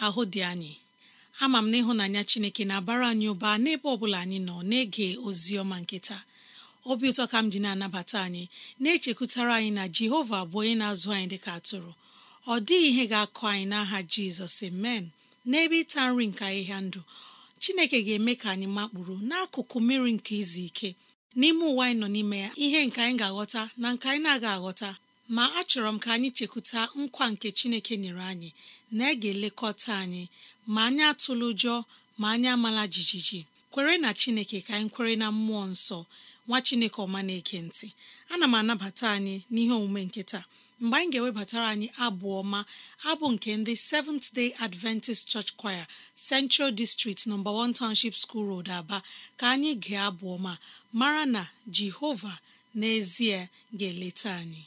ahụ dị anyị ama m na ịhụnanya chineke na-abara anyị ụba n'ebe ọ bụla anyị nọ na-ege ozi ọma nketa obi ụtọ ka m ji na-anabata anyị na-echekwutara anyị na jehova bụ onye na-azụ anyị dịka atụrụ ọ dịghị ihe ga-akụ anyị n'aha jizọs amen n'ebe ịta nri nke ahịhịa ndụ chineke ga-eme ka anyị makpụrụ n'akụkụ mmiri nke izu ike n'ime ụwa anyị nọ n'ime ya ihe nke anyị ga-aghọta na nke anyị na-aga aghọta ma achọrọ m ka anyị chekwuta nkwa nke chineke nyere anyị na e ga-elekọta anyị ma anyị atụlụ ụjọ ma anyị amala jijiji kwere na chineke ka anyị kwere na mmụọ nsọ nwa chineke ọma na-eke ntị ana m anabata anyị n'ihe omume nke taa mgbe anyị ga-ewebatara anyị abụ ọma abụ nke ndị Seventh Day Adventist Church Choir Central District No. 1 Township School Road, Aba ka anyị ga-abụ ọma mara na Jehova n'ezie ga-eleta anyị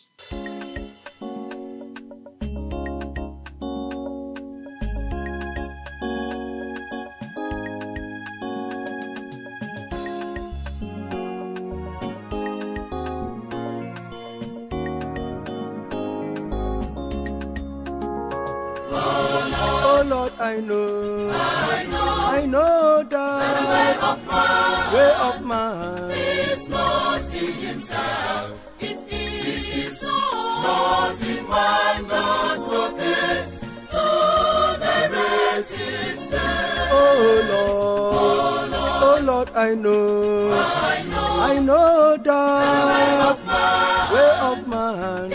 I know, I know, I know that the way of man, way of man is not in himself, it is, it is not in man, not rocket to the rest Oh there oh Lord, oh Lord, I know, I know, I know that the way of man, way of man.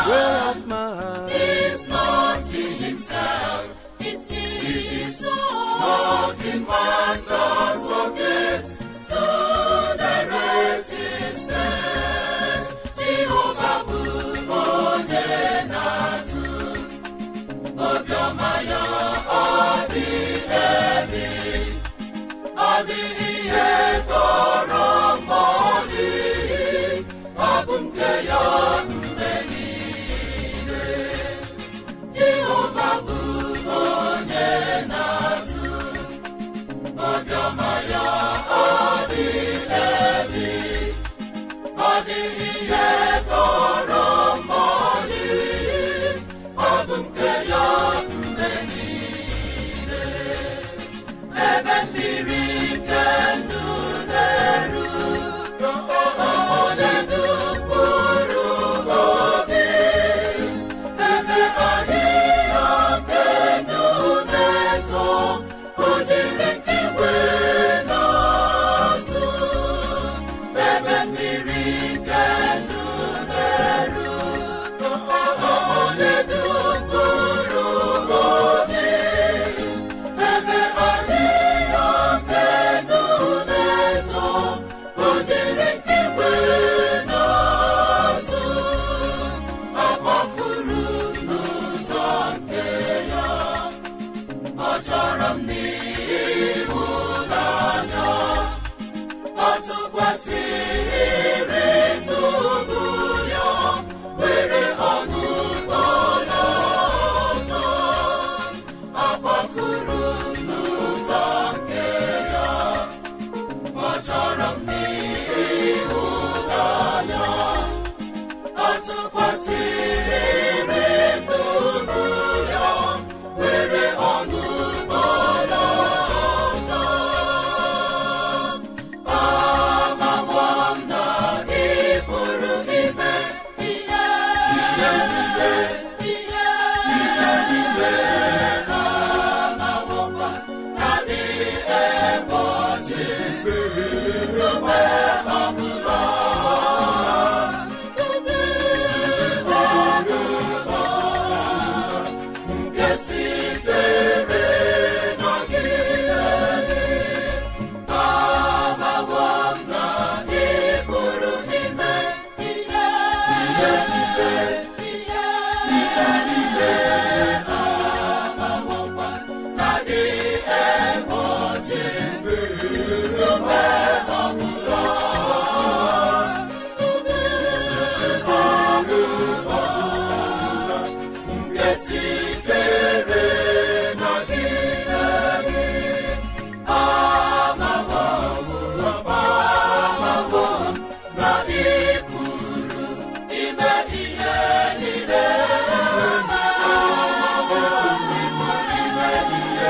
Jehova bụ onye na-azụ obiọma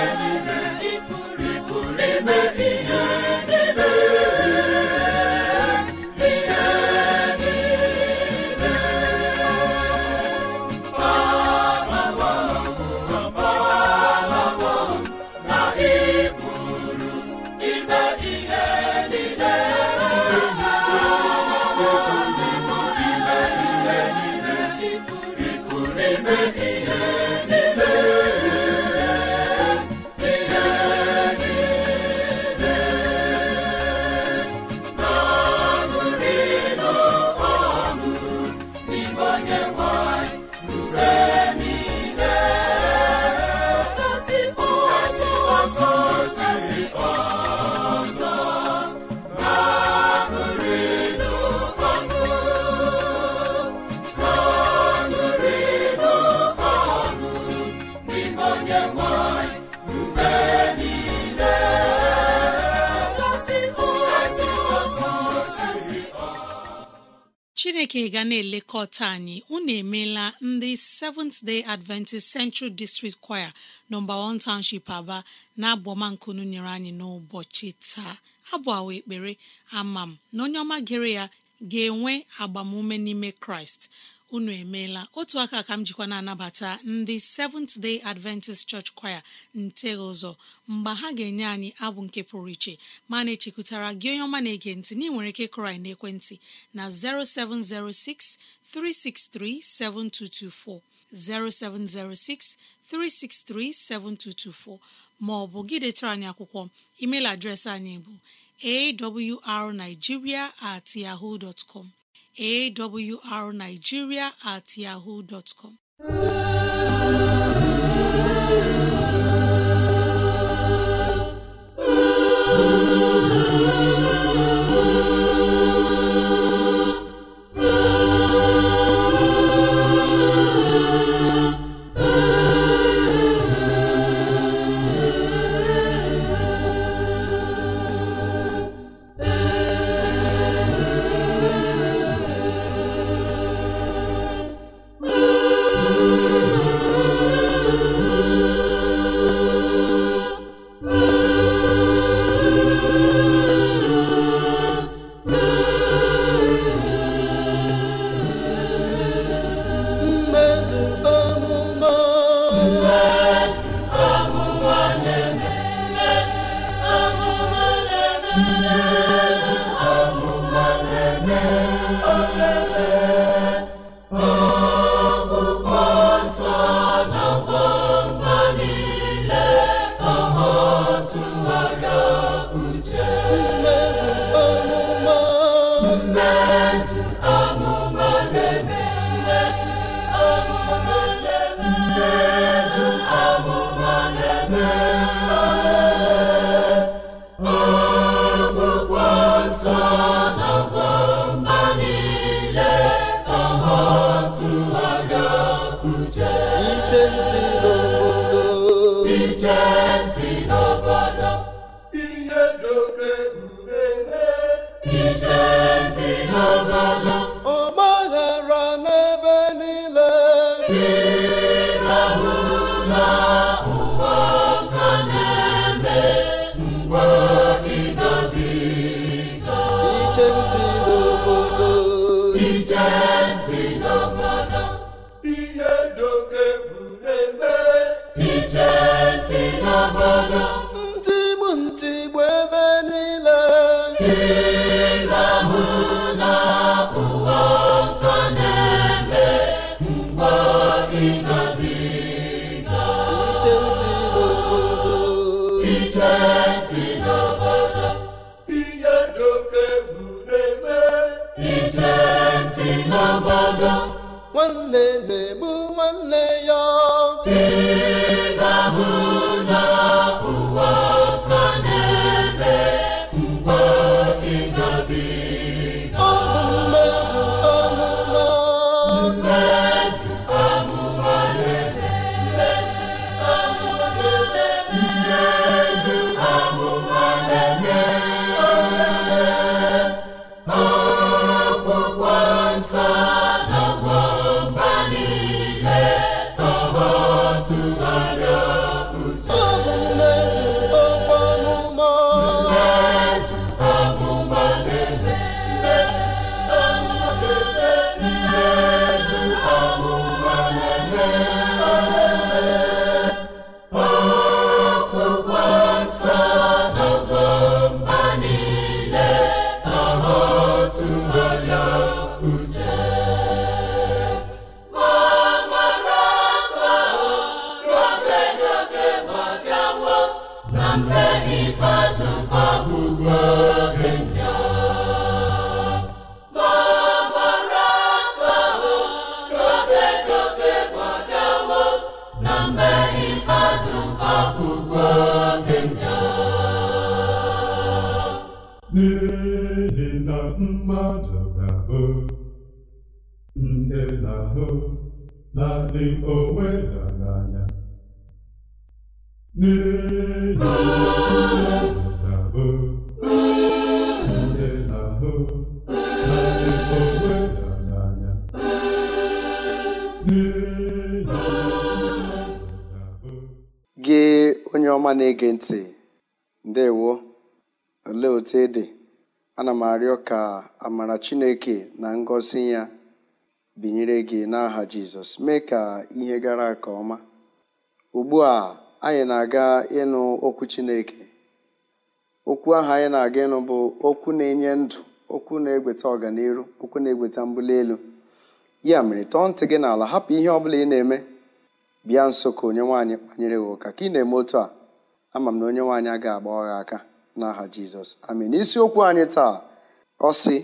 niile chineke ga na-elekọta anyị unu emeela ndị Seventh Day Adventist Central District Choir nọmba 1 Township Aba na-abọmankunu nyere anyị n'ụbọchị taa abụọ awa ekpere ama m na onye ọma gere ya ga-enwe agbamume n'ime Kraịst unu emeela otu aka ka m jikwa na-anabata ndị Seventh Day Adventist Church Choir nte ụzọ mgbe ha ga-enye anyị abụ nke pụrụ iche ma na-echekwutara gị onye ọma na-ege ntị na nwere ike kụrụ na ekwentị na 0706 363 7224 0706 363 7224 ma ọ bụ gị detara anyị akwụkwọ email adreesị anyị bụ awrnigeria at yahoo dot awrnigeria at yahoo dot ka amara chineke na ngosi ya binyere gị n'aha jizọs mee ka ihe gara nke ọma ugbu a anyị na-aga ịnụ okwu chineke okwu ahụ anyị na-aga ịnụ bụ okwu na-enye ndụ okwu na-egweta ọganiru okwu na-egweta mbuli elu ya mere tọọ ntị gị n'ala hapụ ihe ọ bụla ị na-eme bịa nso ka onye nwaanyị kpanyere gị ụka ka ị na-eme otu a ama m na onye nwaanyị agaghị agba ọgha aka n'aha jizọs amen isiokwu anyị taa ọ sị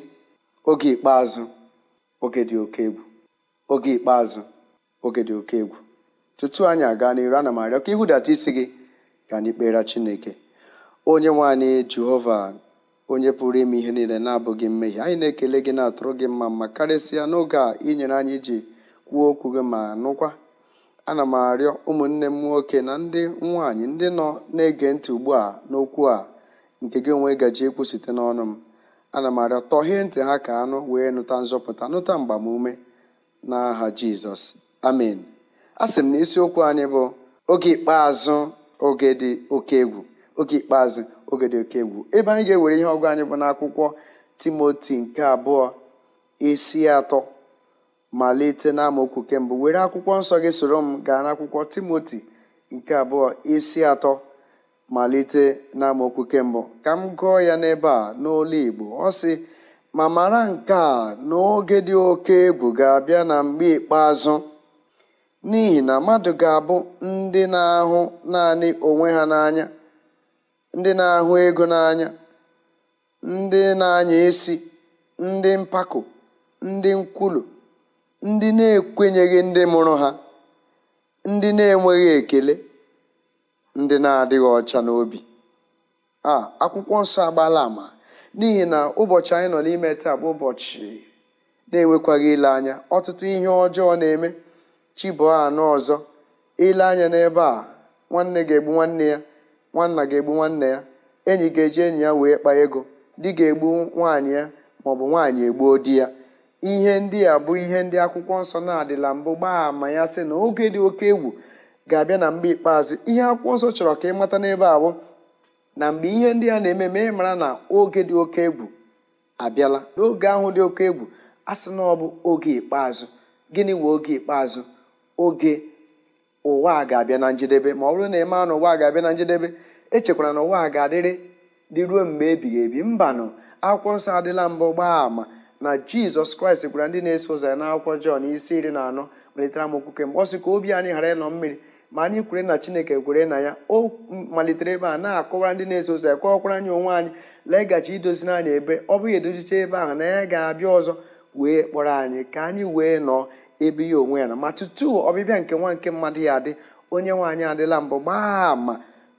oge ikpeazụ oge dị oke egwu oge ikpeazụ oge dị oke egwu tutu anyị aga n'iru ana m arịọ ka ịhụdata isi gị ka anyị kpere Chineke onye nwanyị Jehova onye pụrụ ime ihe niile na-abụghị mmehie anyị na-ekele gị na-atụrụ gị mma mma karịsịa n'oge a inyere anyị iji kwuo okwu gị ma nụkwa ana m arịọ ụmụnne m nwoke na ndị nwaanyị ndị nọ na-ege ntị ugbu a n'okwu a nke gị onwe gaji ekwu site n'ọnụ m ana m arịọ tọhee ntị ha ka anụ wee nụta nzọpụta nụta mgbamume n'aha jizọs amen a sị m na isiokwu anyị bụ oge ikpeazụ oge dị oke egwu oge ikpeazụ oge dị oke egwu ebe anyị ga-ewere ihe ọgụ anyị bụ n'akwụkwọ timoti nke abụọ isi atọ malite n'amaokwu kemgbe were akwụkwọ nsọ gị soro m gaa n'akwụkwọ timoti nke abụọ isi atọ malite n'amaokwu kembụ ka m gụọ ya n'ebe a n'olu Igbo ọ sị ma mara nke a n'oge dị oke egwu ga-abịa na mgbe ikpeazụ n'ihi na mmadụ ga-abụ ndị na-ahụ naanị onwe ha n'anya ndị na-ahụ ego n'anya ndị na-anya isi ndị mpako ndị nkwulu ndị na-ekwenyeghị ndị mụrụ ha ndị na-enweghị ekele ndị na-adịghị ọcha n'obi a akwụkwọ nsọ agbala ama n'ihi na ụbọchị anyị nọ n'ime taa bụ ụbọchị na-enwekwaghị ile anya ọtụtụ ihe ọjọọ na-eme chibụọ anọ ọzọ ile anya n'ebe a nwanne ga-egbu nwanne ya nwanna ga-egbu nwanne ya enyi ga-eji enyi ya wee kpaa ego di ga-egbu nwaanyị ya maọbụ nwaanyị egbuo di ya ihe ndị a bụ ihe ndị akwụkwọ nsọ na-adịla mbụ gbaa ama ya sị na oge dị oke egwu ga-abịa na mgbe ikpeazụ ihe akwụkwọ nsọ chọrọ ka ị mata n'ebe abụ na mgbe ihe ndị a na-eme ị mara na oge dị oke egwu abịala n'oge ahụ dị oke egwu a sị na ọ bụ oge ikpeazụ gịnị wee oge ikpeazụ oge ụwa ga-abịa na njedebe ma ọ bụrụ na ị na ụwa ga-abịa na njedebe echekwara na ụwa ga-adịrị dị ruo mgbe ebighị ebi mbanụ akwụkwọ nsọ adịla mbụ gbaa ama na jizọs kraịst gwara ndị na-eso ụzọ ya n'akwụkwọ jọn isi iri na anọ malitere amokwu kemgbe ọ sị ka obi anyị ghara ịnọ mmiri ma anyị kwere na chineke kwere na ya o malitere ebe a na-akọwara ndị na-eso ụzọ ya kọọkwara anyị onwe anyị lee idozi idozina anyị ebe ọ bụghị edozicha ebe ahụ na ya ga-abịa ọzọ wee kpọrọ anyị ka anyị wee nọọ ebe ya onwe ya na ma tutu ọbịbịa nke nwa nke mmadụ ya adị onye nwe anyị adịla mbụ gbaa ama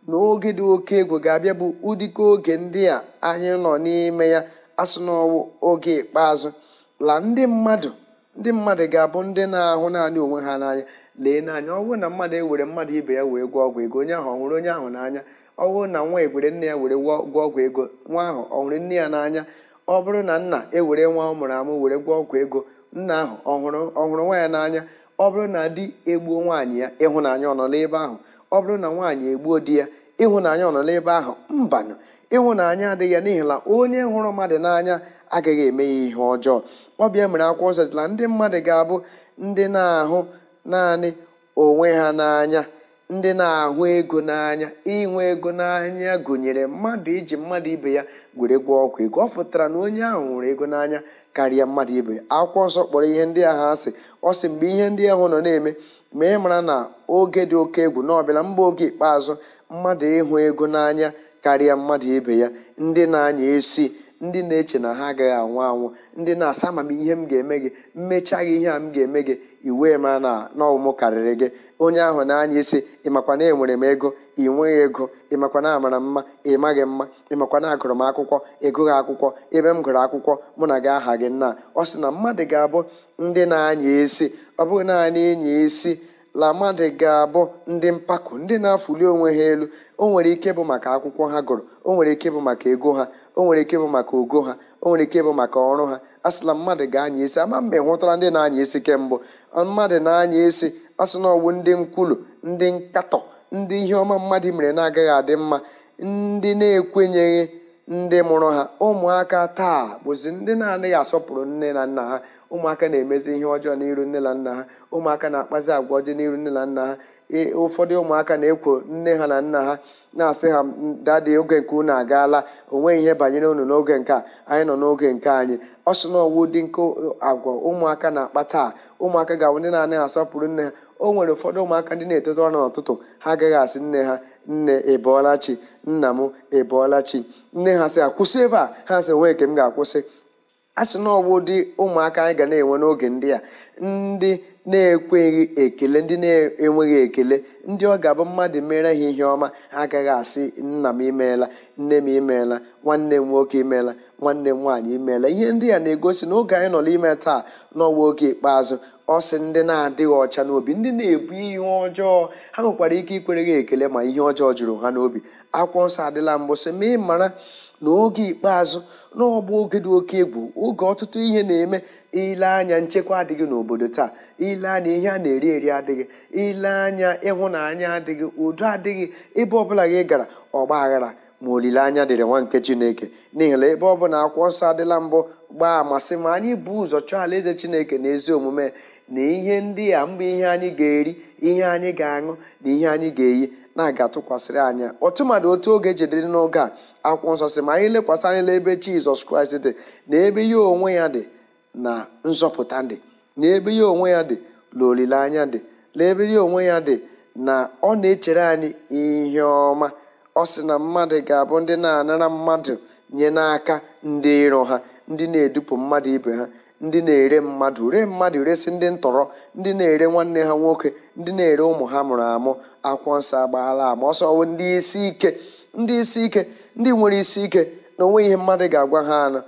na oge dị oke egwu ga-abịa bụ ụdịka oge ndị a anyị nọ n'ime ya asụ n'ọwụ oge ikpeazụ la ndị mmadụ ndị mmadụ ga-abụ ndị na-ahụ naanị onwe ha n'anya lee n'anya ọ bụrụ na mmadụ ewere mmadụ ibe ya wee gwa ọgwụ ego onye ahụ ọ onye ahụ n'anya ọ bụrụ na nwa ewere nne ya were gwọọ ọgwụ ego nwa ahụ ọhụrụ nne ya n'anya ọ bụrụ na nna ewere nwa ọ mụrụ amụ were gwa ọgwụ ego nna ahụ ọhụrụ ọhụrụ nwa ya n'anya ọ bụrụ na di egbuo nwaanyị ya ịhụnanya ọ nọ n'ebe ahụ ọ bụrụ na nwaanyị egbuo di ya ịhụnanya ọ nọ n'ebe ahụ mbanụ ịhụnanya adịghị ya n'ihi na onye hụrụ mmadụ n'anya agaghị eme ya ihe ọjọọ ọ bịa mere akwụkwọ nsọ ndị mmadụ ga-abụ ndị na-ahụ naanị onwe ha n'anya ndị na-ahụ ego n'anya inwe ego n'anya gụnyere mmadụ iji mmadụ ibe ya gwere gwa ọgwụ ego ọ pụtara na onye ahụ hụrụ ego n'anya karịa mmadụ ibe ya akwụkwọ nsọ kpọrọ ihe ndị ahụ asị ọ sị mgbe ihe ndị ahụ nọ na-eme ma ị mara na oge dị oke egwu na ọbịala mba oge ikpeazụ mmadụ ịhụ ego n'anya karịa mmadụ ibe ya ndị na-anya esi ndị na-eche na ha agaghị anwụ anwụ ndị na-asa ma m ihe m ga-eme gị mmechaghị ihe a m ga-eme gị iwu ma na n'ọmụ karịrị gị onye ahụ na-anya isi ịmakwa na enwere m ego ị nweghị ego ịmakwa na amara mma ị maghị mma ịmakwa na agụrụ m akwụkwọ ị akwụkwọ ebe m gụrụ akwụkwọ mụ na gị aha gị nna ọ sị na mmadụ ga-abụ ndị na-anya isi ọ bụghị naanị ịnya isi lamadi ga-abụ ndị mpako ndị na-afụli onwe ha elu o nwere ike bụ maka akwụkwọ ha gụrụ o nwere ike bụ maka ego ha o nwere ike bụ maka ogo ha o nwere ike bụ maka ọrụ ha asịla mmadụ ga-anya isi ama mgbe hụtara ndị na-anya isi kemgbe mmadụ na-anya isi asị na ndị nkwulu ndị nkatọ ndị ihe ọma mmadụ mere na-agaghị adị mma ndị na-ekwenyeghị ndị mụrụ ha ụmụaka taa bụzi ndị na-anaghị asọpụrụ nne na nna ha ụmụaka na-emezi ihe ọjọọ n'iru nne na nna ha ụmụaka na-akpazi agwa ọjọọ n'iru nne na nna ha e, ụfọdụ ụmụaka na-ekwo nne ha na nna ha na-asị ha dadị oge nke unu agaala onweghị ihe banyere unu n'oge nke a anyị nọ n'oge nke anyị ọ sị na ọwụ dị nke agwa ụmụaka na-akpa taa ụmụaka ga-awụ ndị na-anaghị asọpụrụ nne ha o nwere ụfọdụ ụmụaka ndị na etete ọnụ n'ụtụtụ ha agaghị asị nne ha nne ebọọla chi nna m ebọọla nne ha sị akwụsị ebe a ha sị nwee nke m ga-akwụsị a sị na ọwụ dị ụmụaka anyị ga na-enwe n'oge ndị a ndị na-ekweghị ekele ndị na-enweghị ekele ndị ọ ga-abụ mmadụ mere ha ihe ọma agaghị asị nna m imeela nne m imeela nwanne m nwoke imeela nwanne m nwaanyị imeela ihe ndị a na-egosi na oge anyị nọ n'ime taa n'ọwa oge ikpeazụ ọ sị ndị na-adịghị ọcha n'obi ndị na-ebu ihe ọjọọ ha nwekwara ike ikwere ha ekele ma ihe ọjọọ jụrụ ha n'obi akwụkwọ nsọ adịla mbụ sị ma ị mara n'oge ikpeazụ n'ọgbọ oge dị oke egwu oge ọtụtụ ihe na-eme ile anya nchekwa adịghị n'obodo taa ile anya ihe a na-eri eri adịghị ile anya ịhụnanya adịghị udo adịghị ebe ọbụla gị gara ọgba aghara ma olileanya dịrị nwa nke chineke n'ihi na ebe bụla akwụkwọ nsọ adịla mbụ gbaa amasị ma anyị bụ ụzọ chọọ alaeze chineke na ezi omume na ihe ndị a mgbe ihe anyị ga-eri ihe anyị ga-aṅụ na ihe anyị ga-eyi na-aga atụkwasịrị anya mmadụ otu oge jedere n'oge a akwụkwọ nsọ si ma anyị lekwasị anya n'ebe jizọs kraịst dị na ebe ihe onwe ya dị na nzọpụta dị na ebe ihe onwe ya dị na olileanya dị na ebe ihe onwe ya dị na ọ na-echere anyị ihe ọma ọ sị na mmadụ ga-abụ ndị na-anara mmadụ nye n'aka ndị iro ha ndị na-edupụ mmadụ ibe ha ndị na-ere mmadụ ree mmadụ resị ndị ntọrọ ndị na-ere nwanne ha nwoke ndị na-ere ụmụ ha mụrụ amụ akwụkwọ nsọ agbaala ama ọsọ wụ ndị isi ike ndị isi ike ndị nwere isi ike na onwe ihe mmadụ ga-agwa ha na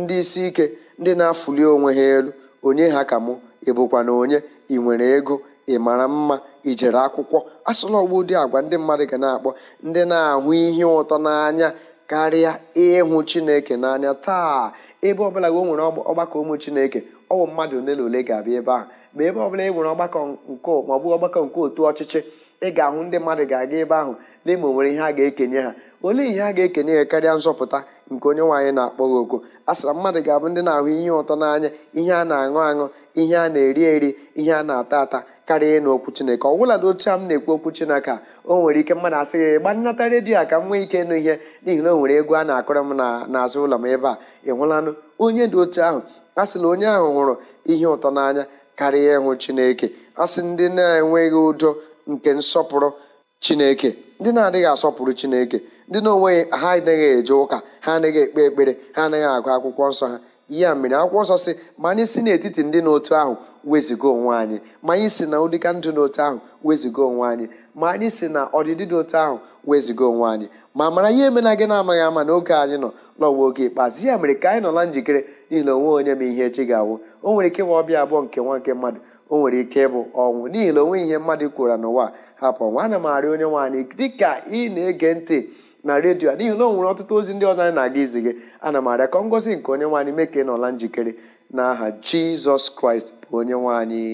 ndị isi ike ndị na-afụli onwe ha elu onye ha ka mụ ịbụkwa na onye ị nwere ego ị mara mma i jere akwụkwọ asụla ọgbu ụdị agwa ndị mmadụ ga na-akpọ ndị na-ahụ ihe ụtọ n'anya karịa ịhụ chineke n'anya taa ebe ọbụla o nwere ọgbakọ ụmụ chineke ọwụ mmadụ ole na ole ga-abịa ebe ahụ ma ebe ọbụla e nwere ọgbakọ nke ọgbakọ nke otu ọchịchị ị ga-ahụ ndị mmadụ ga-aga ebe ahụ n'ime onwere ihe a ga-ekenye ha olee ihe a ga-ekenye ya karịa nzọpụta nke onye nwaanyị na-akpọ gị oku a sịra mmadụ ga-abụ ndị na-ahụ ihe ụtọ n'anya ihe a na-aṅụ aṅụ ihe a na-eri eri ihe a na-ata ata karịa ịnụ okwu chineke ọ bụla dị otu a m na-ekwu okwu chineke a o nwere ike mmadụ asị ya ịgba nnata redio a ka m nwee ike ịnụ ihe n'ihi na o nwere ego a na akọrọ m n'azụ ụlọ m ebe a ị hụlanụ onye dị otu ahụ a sịla onye ahụ hụrụ ihe ụtọ n'anya karịa ịhụ chineke a sị ndị na-enweghị udo nke nsọpụrụ chineke ndị na-adịghị asọpụrụ chineke ndị na-onweghị ha anaghị eje ụka ha anaghị ekpe ekpere ha anaghị agụ akwụkwọ nsọ ha ya mere akwụkwọ nsọ si ma anyị si n'etiti ndị n'otu ahụ wezigo onwe anyị ma anyị si na ụdịka ndụ n'otu ahụ wezigo onwe anyị ma anyị si na ọdịdị n'otu ahụ wezigo onwe anyị ma mara ihe emena gị na-amaghị ama n'oge anyị nọ n'ọwa oge ikpeazụ ya mere ka anyị nọ na njikere n'ihi na onwe onye ma ihe echi ga-awụ o nwere ike ịwa ọbịa abụọ nke nwa nke mmadụ o nwere ike ịbụ ọnwụ n'ihi na onwe ihe mmadụ kwuru n'ụwa hapụ ọnwụ ana m onye nwaanyị dịka ị na-ege ntị na redio a n'ihi na o nwere ọtụtụ ozi ndị ọzọ anyị na-aga izi gị ana m arịa ka ngozi nke onye nwaanyị mee nọla njikere na aha jizọs kraịst bụ onye nwaanyị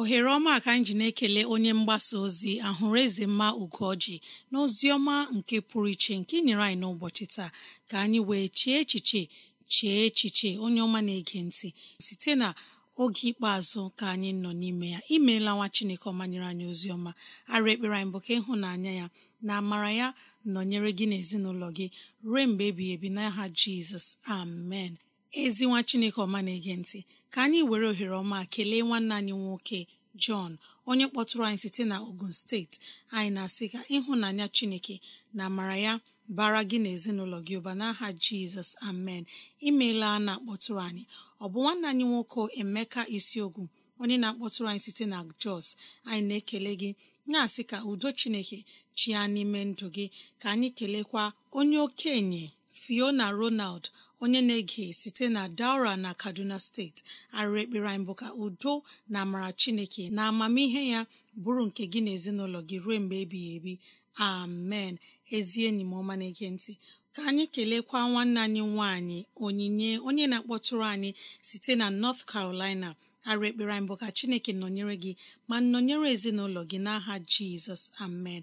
ohere ọma ka anyị ji na-ekele onye mgbasa ozi ahụrụ eze mma ugoji na ozi ọma nke pụrụ iche nke nyere anyị n'ụbọchị taa ka anyị wee chee echiche chee echiche onye ọma na-ege ntị site na oge ikpeazụ ka anyị nọ n'ime ya imeela nwa chineke ọma nyere anyị ozi ọma ara ekpere anyị bụ ka ịhụnanya ya na amara ya nọnyere gị na ezinụlọ gị ruo mgbe ebighị ebi n'aha jizọs amen ezinwa chineke ọma na-ege ntị ka anyị were ohere ọma kelee nwanne anyị nwoke Jọn onye kpọtụrụ anyị site na Ogun steeti anyị na-asị ka ịhụnanya Chineke na amara ya bara gị na ezinụlọ gị ụba n'aha Jizọs amen imeela na-akpọtụrụ anyị ọ bụ nwanne anyị nwoke Emeka Isiogwu onye na-akpọtụrụ anyị site na Jos anyị na-ekele gị na-asị ka udo Chineke chia n'ime ndụ gị ka anyị kelekwa onye okenye Fiona Ronald onye na-ege site na daura na kaduna steeti arịrị ekpere anyị bụ ka udo na amara chineke na amamihe ya bụrụ nke gị na ezinụlọ gị ruo mgbe ebighị ebi amen ezie enyi m ọma na-ege ntị ka anyị kelekwa nwanne anyị nwanyị onyinye onye na-akpọtụrụ anyị site na north carolina arụ ekpere anyị bụ ka chineke nọnyere gị ma nọnyere ezinụlọ gị n'aha jizọs amen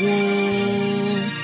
woo!